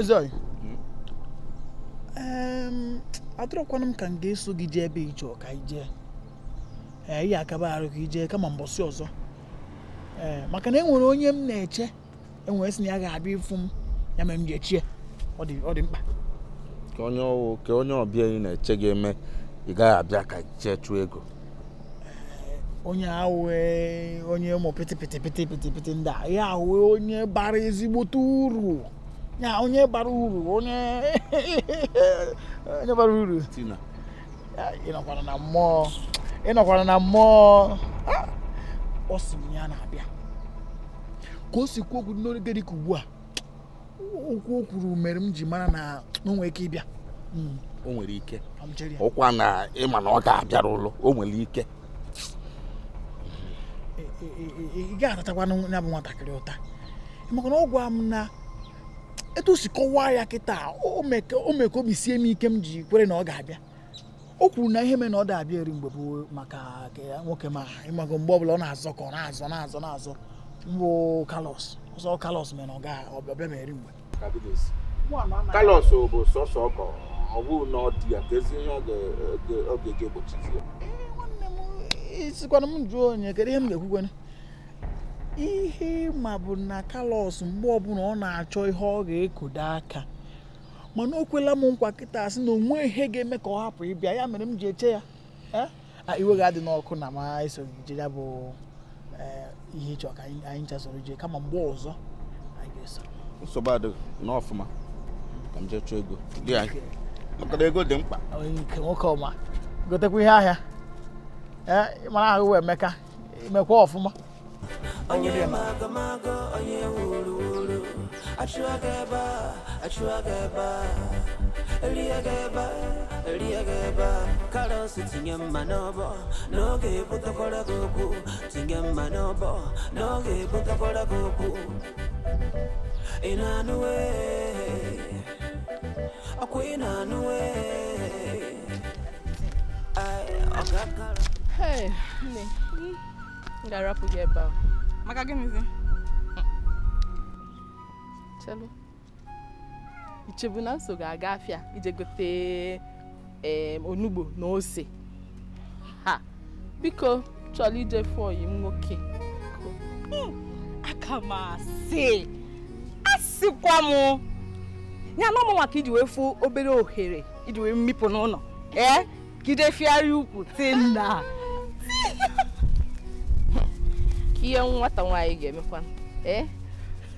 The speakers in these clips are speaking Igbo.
atụrụ adọrọkwana m ka m ga-eso gị jee ebe ije ọka ije ee ihe akaba arụ ijee kama mbọsị ọzọ ee maka na enwere onye m na-eche enwere sị na ya ga-abịa ịfụ m ya mere m ji echie ọ dị mkpa ka onye ọwụ ka onye ọbịa ị na-eche gị eme ị gaghị abịa ka chee chụọ ego onye ahụ onye ụmụ pịtị ndị a ya ahụ onye bara ezigbote uru na onye bara uru onye onye bara uru ịnọkwara na mmụọ ịnọkwara na mmụọ ọ sị m ya na-abịa ka o si kwuo okwu n'oge ka ugbu a okwu o kwuru mere m ji mara na o nwere ike ịbịa hmm. o nwere ike ụkwa na ịma na ọ ga-abịara ụlọ o nwere ike ị ga-aratakwa ya bụ nwatakịrị ụta maka na ọ m na etu o si kọwaa ya kịta o mee ka obi sie m ike m ji kwere na ọ ga-abịa o kwuru na ihe mere na ọ da-abịa eri mgbe bụ maka nwoke ma ịmago mgbe ọbụla ọ na-azọ ka ọ na-azọ na-azọ na-azọ mbụ kalos ọzọ kalos mere na ọ ga-abịa ma eri mgbe kalos bụ sọsọ ọkọ ọ na ọ dị ya ka ezi ihe ọ ga-egbochi e, e, sikwana m jụọ onye kedu ihe m ga-ekwukwene ihe ma bụ na Carlos mgbe ọbụla ọ na-achọ ihe ọ ga-ekodo aka mana o kwela m nkwa kịta asị na onwe ihe ga-eme ka ọ hapụ ịbịa ya mere m ji eche ya eh? ah, iwe ga-adị n'ọkụ na ma eso je bụ eh, ihe ịchọ ka anyị chasoro ije kama mgbe ọzọ anyị ga-eso nsogbu adịghị n'ọfụma ka m jee chọọ ego dị anyị maka ego dị mkpa nwoke ọma gotekwa ihe ahịa eh, mara ahụ Emeka imekwa ọfụma onye magamaga onye wuruwuru wuru achụaga ebe a achụaga ebe a ebe a ebe a karọs tinye mma n'ọbọ n'oge ebutakwara gị okwu tinye mma n'ọbọ n'oge ebutakwara gị okwu ị na-anụwe ọkwa ị na-anụwe ọga ga-arapụ gị ebe a. maka gịnịzi chelu ichebu na nso ga-aga afịa ije gote onugbo na ose ha biko chọrọ ije fụ m nwoke aka m asị asịkwa m ya na ọmụ maka iji wee fụ obere ohere iji wee mmipụ n'ụlọ ee gide fịarị ukwu tinna ihe nwata nwaanyị ga-emekwa ee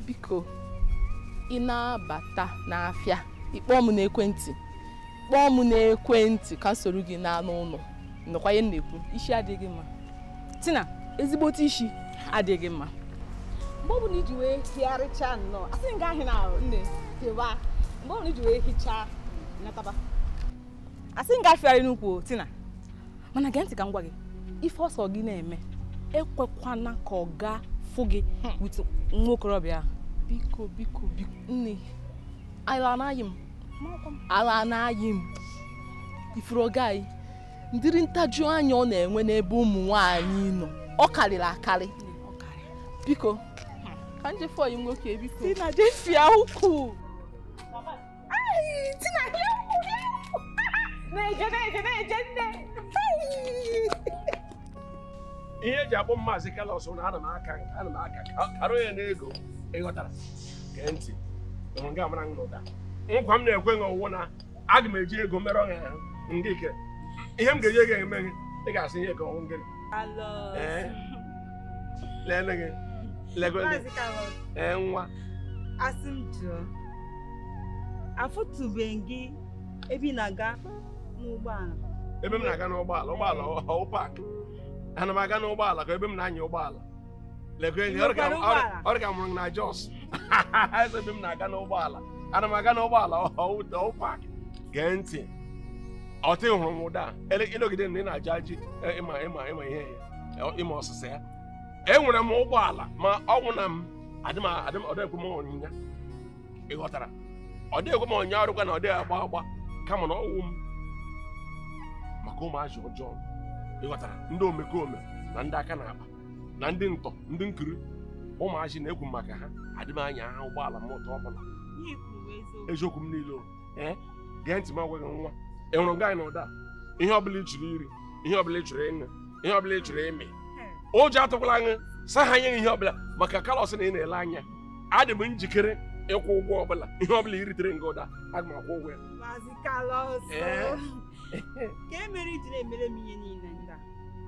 biko ị na-abata n'afịa ịkpọ m n'ekwentị kpọọ m n'ekwentị ka soro gị n'anụ ụlọ nọkwa ihe na isi adịghị mma tina ezigbote isi adịghị mma mgbe ọbụla iji wee nnọọ asị na nne tewa mgbe ọbụla iji wee ife ọsọ gị na-eme ekwekwana ka ọ gaa fụ gị hmm. nwa okorobịa biko biko biko nne ala anaghị m ala anaghị m ifuru gaghị ndịrị ntaju anya ọ na-enwe n'ebe ụmụ nwaanyị nọ ọ karịrị akarị biko hmm. ka njefọ yi nwoke biko si na jefia ukwu na-eje na-eje na-eje nne ihe eji abụ maazị kalos na ana m aka ana m aka karụ ya n'ego ịghọtara gee ntị nga mara ụda nkwa m na-ekwe gị ọwụwụ na aga m eji ego mere ọnya ya ike ihe m ga-enye gị eme gị ị ga-asị ihe gị ọnwụ gị lele gị ee nwa asị m jụọ afụtụbeghị gị ebe na-aga n'ụgbọala ebe m na-aga n'ụgbọala ụgbọala ọhụ paakị ana m aga n'ụgbọala ka ebe m na-anya ụgbọala ọ dịka mụrụ na Jos ebe m na-aga n'ụgbọala ana m aga n'ụgbọala pak gee ntị ọtị hụrụ m ụda ịnọgide na ị na-ajụ e, ajị ịma ihe ya e, ịma ọsịsa ya enwere m ụgbọala ma ọnwụ na m ọdịghị onyinye ị ghọtara ọ dịghị ekwe m onye ọrụ kwa na ọ dịghị agba agba kama na ọnwụ m maka ụmụ ọjọọ ịghọtara ndị omekome na ndị aka na-akpa na ndị ntọ ndị nkiri ụmụazị na-ekwu maka ha adịm anya ha ụgbọala m ụtọ ọbụla eziokwu m niile ee gee ntị m agwaghị nwa ị hụrụ gaanyị na ụda ihe ọbụla ị chụrụ iri ihe ọbụla ị chụrụ ịṅụ ihe ọbụla ị chụrụ ịmị ụjọ atụkwala aṅụ sa ha nye ihe ọbụla maka kalọs na ị na-ele anya adị m njikere ịkwụ ụgwọ ọbụla ihe ọbụla i ritere nga ụda aga m akwụ ụgwọ ya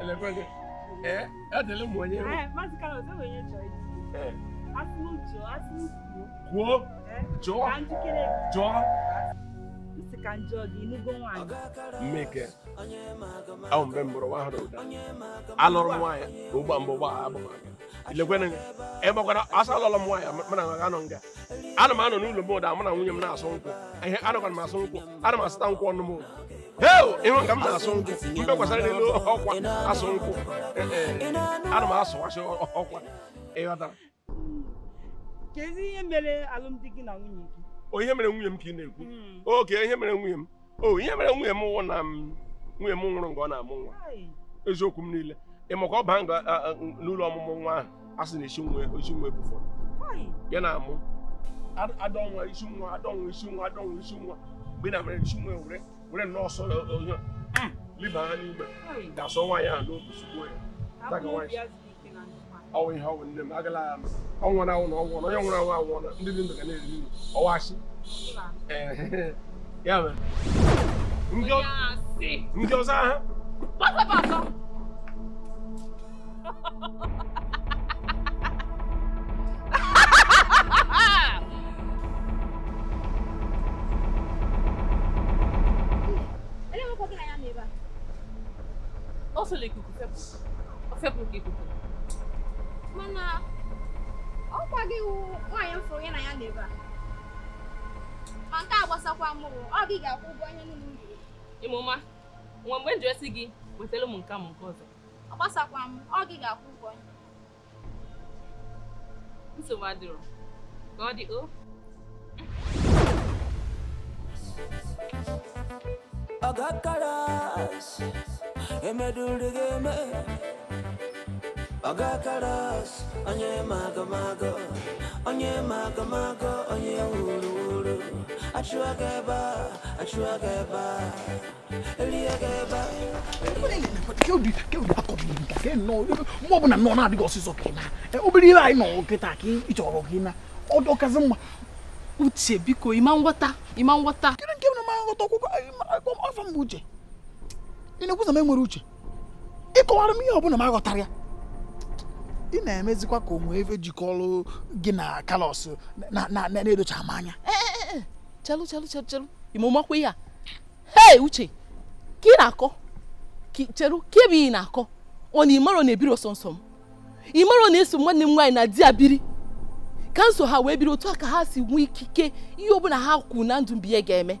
elekwe gị ee eh, adịla eh, eh. m onye mgbe mbụrụ nwa hụrụ alụrụ nwaanyị ka mbụ gba ha abụghị ịgbakwara asa alụlọ m nwaanyị mana ha anọ nga ana m anọ n'ụlọ m ụda mụ na nwunye m na-asụ nkwụ ihe m asụ nkwụ ana m asụta nkwụ ọnụ m ụda ịhụ ka m na-asụ nkwụ mgbe gbasara n'elu ọkwa asụ nkwụ eh, eh, ana m asụwasị ọkwa ịghọtara kedu ihe mere nwunye o ihe mere nwunye m ka ị na-ekwu hmm. oke ihe mere nwunye m o ihe mere nwunye m wụ na nwunye m nwụrụ mgbe ọ na-amụ nwa eziokwu m niile ị makwa ọ baa n'ụlọ ọmụmụ nwa ahụ a sị na isi nwa isi nwa ebu fọrọ ya na-amụ adọnwa isi nwa adọnwa isi nwa adọnwa isi nwa mgbe na mere isi nwa ewere wúrẹ́ náà sọ̀rọ̀ ọ̀yàn libaa ni ma daasɔn wa yan n'o dusu ko ye ta ka wa ye aw ye aw ni dɛmɛ akɛla yan aw ŋɔna aw n'aw ŋɔna aw ŋɔna aw ŋɔna n de bi y'a mɛ n jɔ n jɔ sa. ọsọla ikuku fepụ ikuku mana ọ gị wụ nwaanyị m fụrụ ya na ya nọ ebe a ma nke a gbasakwa mụrụ ọ gị ga-akwụ ụgwọ onye niile m riri ịmụma nwe mgbe njọ esi gị wetara m nke m nke ọzọ ọ gbasakwa m ọ gị ga-akwụ ụgwọ nsogbu adịrọ ka ọ dị o oh. Thank you. agakalaasi emedulde geme agakalaasi onye magamago onye magamago onye wuluwulu achụaga ebe a achụaga ebe a eliaga ebe a mgbe ọbụla nọ na-adịghị ọsịsọ ka ị na obere ihe anyị nọ kịta ka ị chọrọ gị na ọdọkazi mma uche biko ịma nghọta ịma nghọta nghọta ọkwụkwọ afọ eh, mgbe uche ị na-ekwuza m enwere uche ịkọwara m ihe ọbụla m aghọtara ya ị na-emezikwa ka onwe efe jikọrọ gị na kalọs na-edocha m anya chelu eh, eh, chelu chelu chelu imumakwa ihe a hei uche ka ị na-akọ chelu ka ebe ị na-akọ ọ na imero na-ebiri ọsọ m ị mara na-eso nwanne m nwaanyị na di ya biri ka nso ha wee biri otu a ka ha si nwee ikike ihe ọbụla ha kwuru na ndụ mbiye ga-eme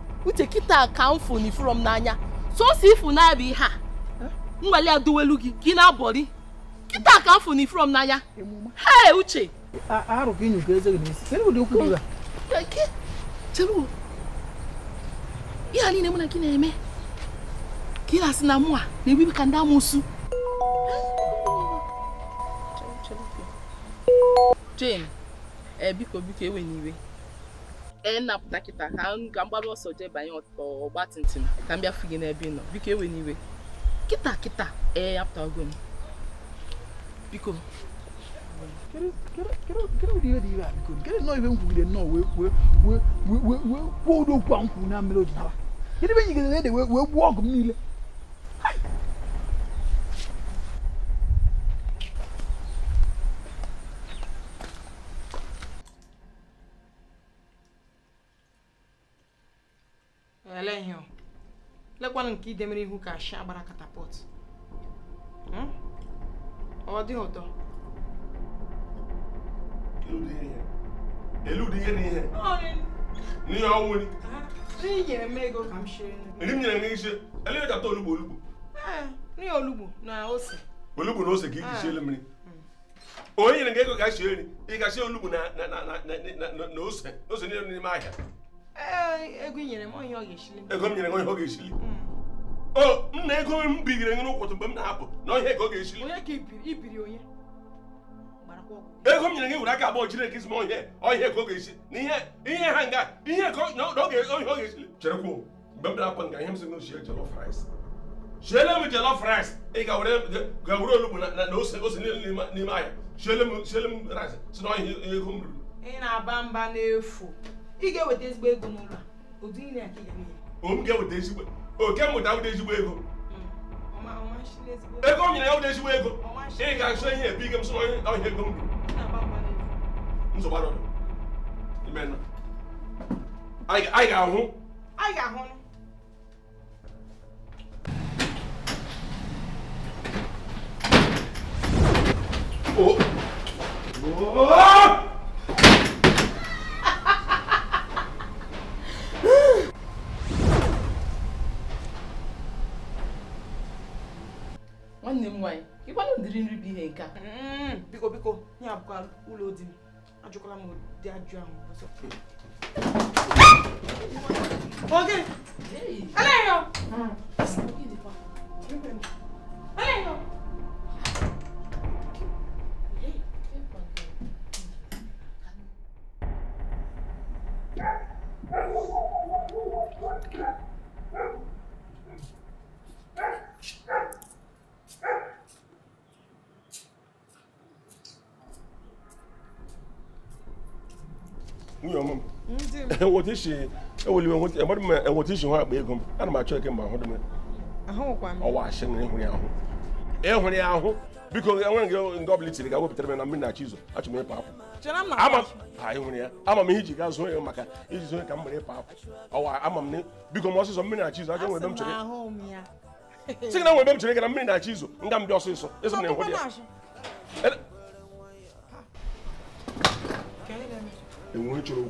uche kịta ka m fụn ifuru n'anya sọsọ ifu na-abịa ihe a nwale ya duwelu gị gị na-abọrị kịta ka m fụn ifuru m n'anya hee uche arụ ka eze gị n'isi kedụ ụdị okwu gị cheru ihe niile mụ na gị na-eme ka ị na-asị na mụ a na-ebibi ka ndị amụsụ Jane, ee eh, biko biko ewe n'iwe nnapụta kịta ka ka m gbara ọsọ jee banye ọgbatumtum ka m bịafu gị n'ebe ị nọ biko ewe n'iwe kịta kịta ee apụtago m biko kedụ nnọọ ihe m kwugide nnọọ kwuo ụdị okwu a m kwuru na mmiri ojinaba kedụ ebe nyigidere ede wee gbuo ọgụ m niile ọkwanụ nke idemere ihu ka ashi agbara katapọt ọ dịghị ụtọ eludi ihe na ihe n'ihe ọnwụ nri nri nyere m ego ka m shiri nri m nyere gị ise elee gata olugbo olugbo nri olugbo na ose olugbo na ose ka iji siele mmiri onye nyere gị ego ka shie nri ị ga-ashie olugbo na ose ose niile n'ime ahịa ego m nyere m onye ọ ga-eshili hmm. nna ego m bigiri nye n'ụkwụtụ mgbe na-apụ na ihe ka ọ ga-esi ego m nyere gị were aka abụọ jiri gị zima ihe ka ọ ga-esi na ihe ha nga ihe ka ọ ga-esili cherekwu mgbe m na-apụ nga ihe m si na ochie m ị ga-were olugbu na ose niile n'ime ahịa m rice si na ego m ruru ị ga-eweta ezigbo ego n'ụlọ a ya o m ga-eweta ezigbo oke mmụta wụta ezigbo ego ego m nyere ya wụta ezigbo ego ị ga-achọ ihe ebu ike m sọ ọhịa ego m nsogbu imenụ anyị ga-ahụ anyị ga-ahụ Oh! oh! nwanne m nwaanyị ịkwanụ ụdịrị nri bụ ihe nke a biko biko ya abụkwa ụlọ di m ajụkwala m ụdị ajụ ahụ ọzọ ɛwɔ ti si ɛwɔ limu ɛwɔ ti ɛbɔ dimi ɛwɔ ti si hɔ agbe egum ɛna maa kyerɛ kɛ mba ɔho dimi. aho kwa mi. ɔwɔ ahyɛ ne biko ɛwɔ nke nke ɔbili tiri ka wɔ pitɛrɛ na mi na akyi zo atwi mi paako. jɛnɛ ama a ehuri ya ama mi hiji ka zo yɛ maka eji zo yɛ ka mbere paako ɔwɔ ama mi biko mɔ soso mi na akyi zo akyi wɔ ebe m kyerɛ na wɔ m kyerɛ kɛ na mi na akyi nga m bi ɔso so eso na ehuri ya. ewu ne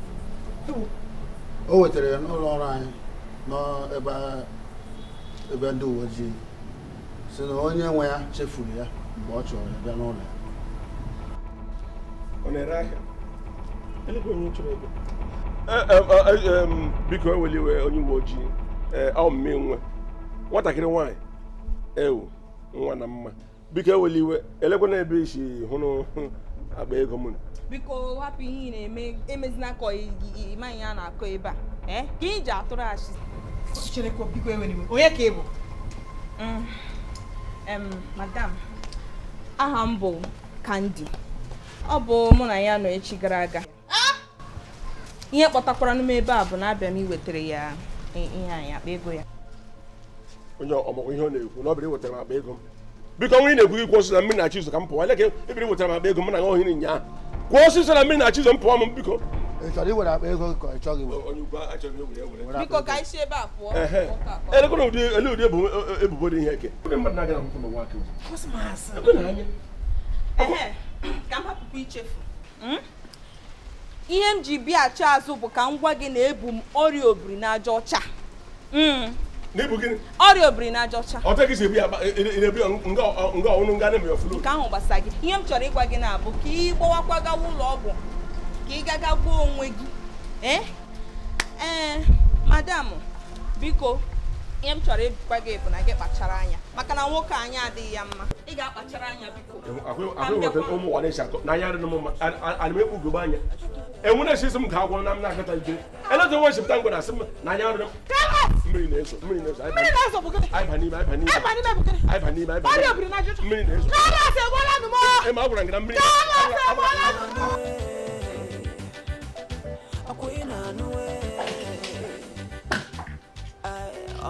o wetara ya n'ụlọ ọrụ anyị n'ebe ndị uwe ojii si na onye nwe ya chefuru ya mgbe ọ chọrọ ya bịa n'ụlọ ya ọ na-ere ahịa e, e, e, biko eweliwe onye uwe ojii ọmme nwe nwatakịrị nwanyị ewu nwa na mma biko eweliwe elekwana ebe isi hụrụ akpa ego m biko hapụ ihe ị na-eme emezina ka ịmaghị ya na-akọ ebe a e? ka ị ji atụrụ achị e onye ka ị bụ mm, madam aha m bụ kandi ọ bụ mụ na ya nọ echi gara aga ihe kpọtakwara n'ime ebe a bụ na abịa m iwetara ya ihe anyị akpa ego ya onye ọmụgwọ ihe ọ na-ekwu na ọ bụrụ iwetara m akpa ego m biko nwa ị na-ekwughị kwụ na mmiri na-achị ka m pụọ ele ka ebiri wetara m akpa ego m na nwa ohiri nyaa kwụ na mmiri na-achị m pụọ m biko elekwana ele ụdị ebubo dị ihe eke ihe m ji bịa achọ azụ bụ ka m gwa gị na ebu m ọrịa obiri ọcha hmm. n'ibu gịnị ọrịa obiri na-ajọcha ọtagị si ebi ebi e, e, nga ọnụ nga na-eme ọfụlụ nke ahụ gbasa gị ihe m chọrọ ịgwa gị na-abụ ka ị gbawakwa gawa ụlọ ọgwụ ka ị gaga gbuo onwe gị ee eh? eh, madam biko ihe m chọrọ ịgwa gị na gị kpachara anya maka na nwoke anyị adịghị ya mma ị ga-akpachara anya biko anya enwe esi m ga agwọ na m na-akọta ide eleta nwe echepụta ngwa na m na anya m mmiri na-ezo mmiri na-ezo anyị n'ime na-ezo ema anyị mmiri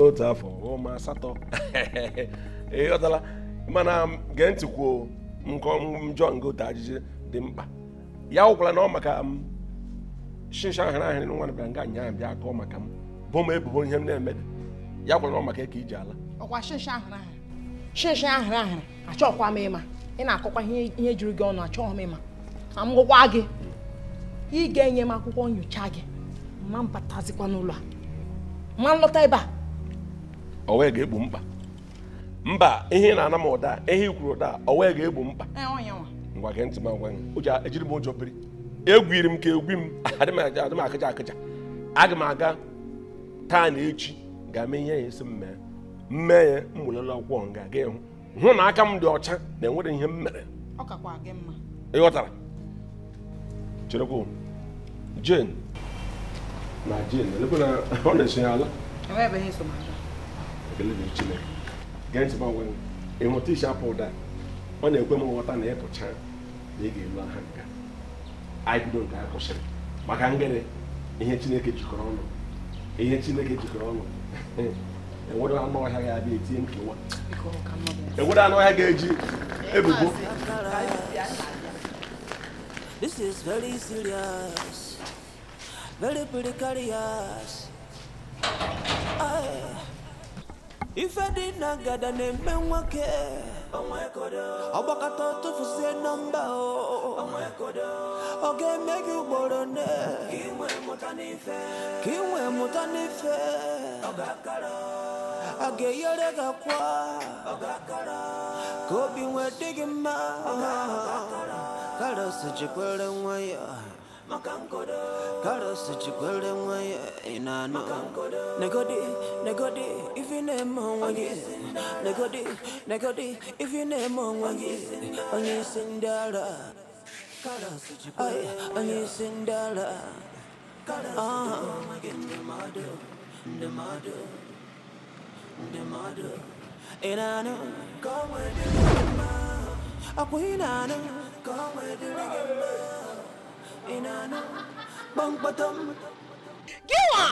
otu afọ ụma asatọ ịghọtala mana gee ntị kwuo njọ ngote ajụjụ dị mkpa ya wụkwala na ọ maka m shisha ahara ahịrị nwa bịara nga nyaa bịa akọ maka m bụ m ebubo ihe m na-eme ya kwala na ọ maka ka iji ala ọkwa shisha ahara ahara shisha ahara ahara achọkwa m ịma ị na-akọkwa ihe juru gị ọnụ achọghị m ịma na m gụkwa gị ị ga-enye m akwụkwọ nyocha gị ma mbatazikwa n'ụlọ a ma m lọta ebe a ọ wee ga-egbu mkpa mba ihe na-ana m ụda ihe ikwuru ụda ọ wee ga-egbu mkpa e, ngwa gị ntị m agwa gị ejiri m ụjọ biri egwiri m ka egwi m adịm m akịja akịja aga m aga taa na echi ga-eme ihe ya esi m mee mmee ya m welela akwụkwọ nga aga ịhụ hụ na aka m dị ọcha na enwere ihe m mere ịghọtara cherekwa jen na jen ọ na-eso ya ala ekele na Chineke gee ntị gbanwe ịhụta iche apụ ụda ọ na-ekwe m nghọta na ịpụcha na ị ga-elu aha nka anyị bido nke a kwụsịrị maka ngịrị ihe Chineke jikọrọ ọnụ ihe Chineke jikọrọ ọnụ enwere anụ ọhịa ga-abịa etinye ụwa enwere anụ ọhịa ga-eji ebubo This is very serious, very precarious. I... ife dị na ngada na-eme nwoke ọgbakọta tụfuzie nọmba ọ ga-eme gị ugboro ne ka ị nwee mụta n'ife a ga-eyere gị akwa ka obi nwee dị gị mma karọs jikwere nwa ya Gotta such a golden way in no. Negodi, negodi, if you name on one Negodi, negodi, if you name on one is. On your sindala. Aye, on your sindala. Ah, the mother, the mother, in a no. Go with the mama. A queen, I with the mama. ina na ban batam giwa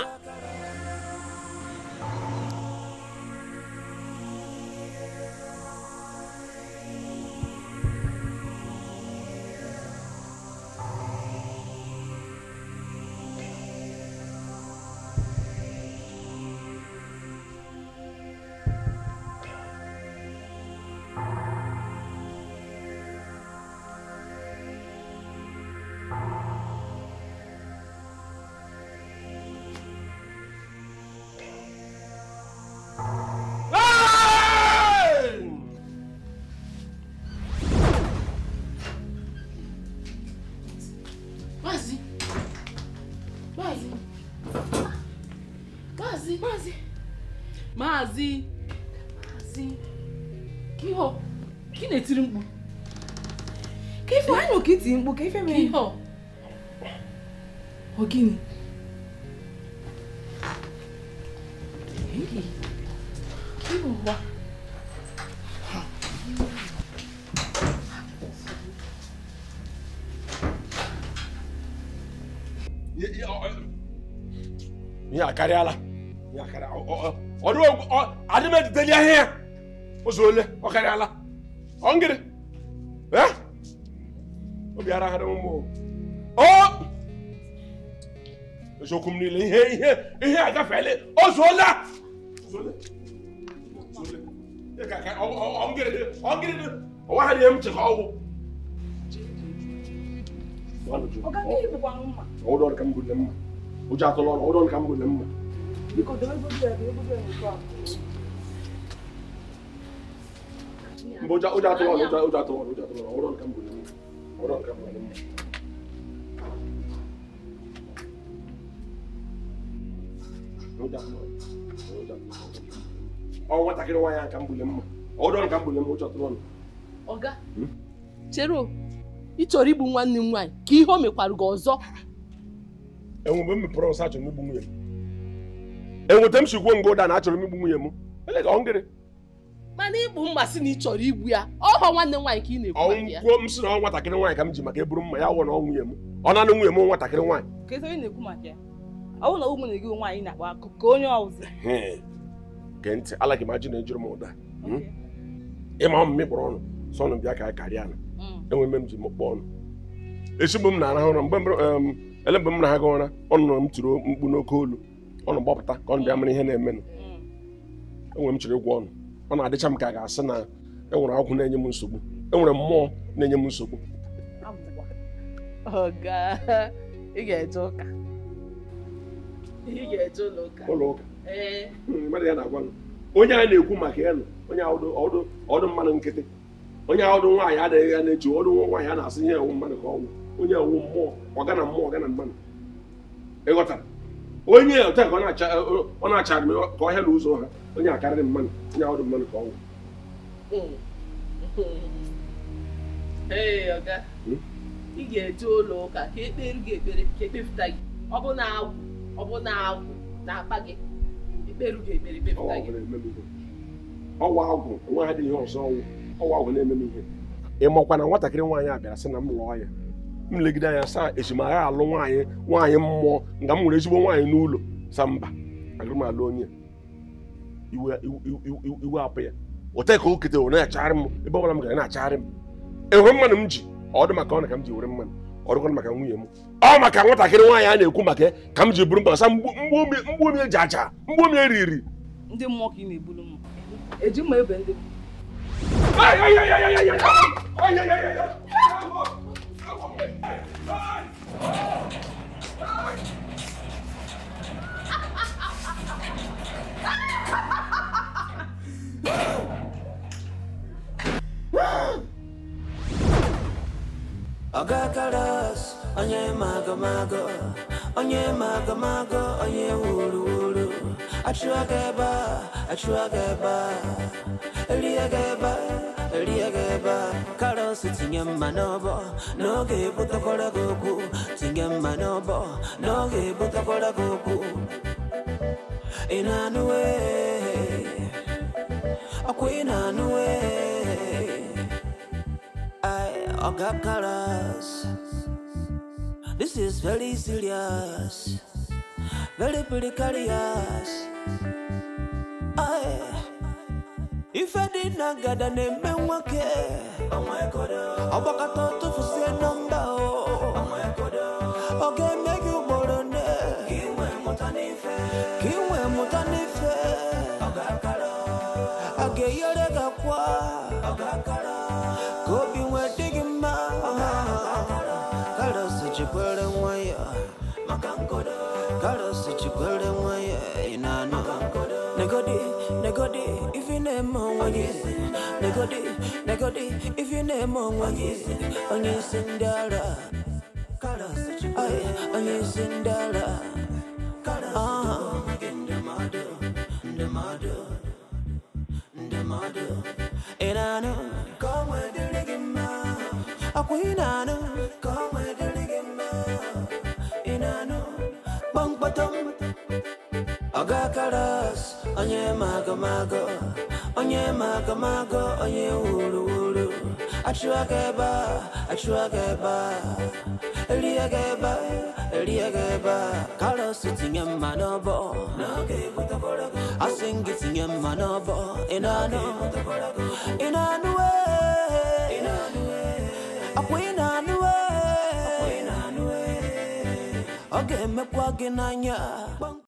maazị maazị kiho ki na-etiri mkpu ka ife anyị ka iti mkpu ka ife mere kiho ọ gịnị ihe akarịala ihe akarịala adị m ejideli ahịa ya ụzọ ole ọ karịala ọngịrị obi ara ụmụ o eziokwu m niile ihe ihe ihe agafeela ozuola ọnwa ha na m chekwa ọgwụ ụjọ atụla ka m mma Because the way you do it, the way you do it, you can't. Oja oja to oja oja to oja to ọ̀rọ̀ nǹkan bò ní ọ̀rọ̀ nǹkan bò ní. Oja to oja to ọwọ́ nwatakịrị nwaanyị a nǹkan bò ní mma ọ̀rọ̀ nǹkan bò ní mma oja to ọnụ. Ọga chere o ịchọrọ igbu nwanne m nwaanyị ka ihe o mekwarụ gị ọzọ. Enwe mgbe m mepere ọsa achọrọ m igbu nwunye m. enweta m si gwuo ụda na achọrọ m igbu nwunye m mana igbu mma sị na ị chọrọ igbu ya ọhọ nwanne nwaanyị ka ị na-ekwu ọnwụkwuo m si na ọ nwatakịrị nwaanyị ka m ji maka eburu mma ya ọwụ na ọ nwunye m ọ na nwunye m nwatakịrị nwaanyị gee ntị ala m ajụ na ejuru m ụda hmm? ịma m mịkpọrọ ọnụ sọ ọnụ bịa ka a karịa na hmm. enwe m ji m kpọ ọnụ esi mgbe m na-arahụ ụra mgbe ele mgbe m na-aga ụra ọnụ na m tụrụ mkpu n'oke olu ọnụ gbapụta ka ọnụ bịa mara ihe na-emenụ hmm. enwere m chere ụgwọ ọnụ ọ na-adịcha m ka a ga-asị na enwere agwụ na-enye m nsogbu enwere mmụọ na-enye m nsogbu oh, eh. hmm, onye a na-ekwu maka elu onye ọdụ mmadụ nkịtị onye ọdụ nwaanyị adịghị ya na-eji ọdụ nwaanyị a na-asị ihe ewu mmadụ ka ọnwụ onye ewu mmụọ ọgana mmụọ ọgana mmadụ ịghọtara onye ote ka ọ na-achara m ka ọhịa na ụzọ ha onye akarịrị mmanụ onye ahụ dị mmanụ ka ọnwụ hmm? ị ga-eje ụlọ ụka ka ekpere gị ekpere ka ekpepụta gị ọ bụ na agwụ ọ bụ na agwụ na-akpa e gị ekpere e gị ekpere ekpepụta ọwa agwụ nwa ha dị ihe ọzọ ọnwụ ọwa agwụ na-eme m ihe ị makwa na nwatakịrị nwaanyị a bịara sị na m lụọ ya m legide anya saa echimara alụ nwaanyị nwaanyị mmụọ nga m nwere ezigbo nwaanyị n'ụlọ sa mba agaghị m alụ onye iwe apụ ya ote ka o kete were na-achagharị m ebe ọbụla m gara na-achagharị m enwere mmanụ m ji ọ dị maka ọ na ka m ji were mmanụ ọ dịkwana maka nwunye m ọ maka nwatakịrị nwaanyị a na-ekwu maka ka m ji buru mba sa mgbu omi eji aja mgbu omi riri. ndị mmụọ ka ị na-ebulu m eji mma ebe ndị mmụọ Agakalas, onye mago mago, onye mago mago, onye wuru wuru. Achụọ gaba, achụọ gaba, eli gaba liegeba kalosi tinyemma n'obo n'ogeebutokola gogu tinyemma n'obo n'ogeebutokola gogu inaanuwe ay oga colors this is very serious very pretty precarious ife dị na ngada na-eme nwoke ọgbakọta tụfusie nọmba ọ ga-eme gị ugboro nne ka ị mụta n'ife a ga-eyere gị akwa ka obi nwee dị gị mma karos jikwere nwa ya karos jikwere nwa ya ị na-anụ negodi Negodi, if you name on one yes. Negodi, negodi, if you name on one yes. On your Cinderella. Aye, on your Cinderella. Ah. And I know, come with the reggae man. A queen, I know, come with the reggae man. And I know, bang, bottom, aga got colors onye magomago onye magomago onye wuruwuru achụwa gị ebe a achụwa gị ebe a erie gị ebe a erie gị ebe a karọs tinye mma n'ọbọ asị gị tinye mma n'ọbọ ị na-anụ ị na-anụ akwa ị na-anụ ọ ga-emekwa gị n'anya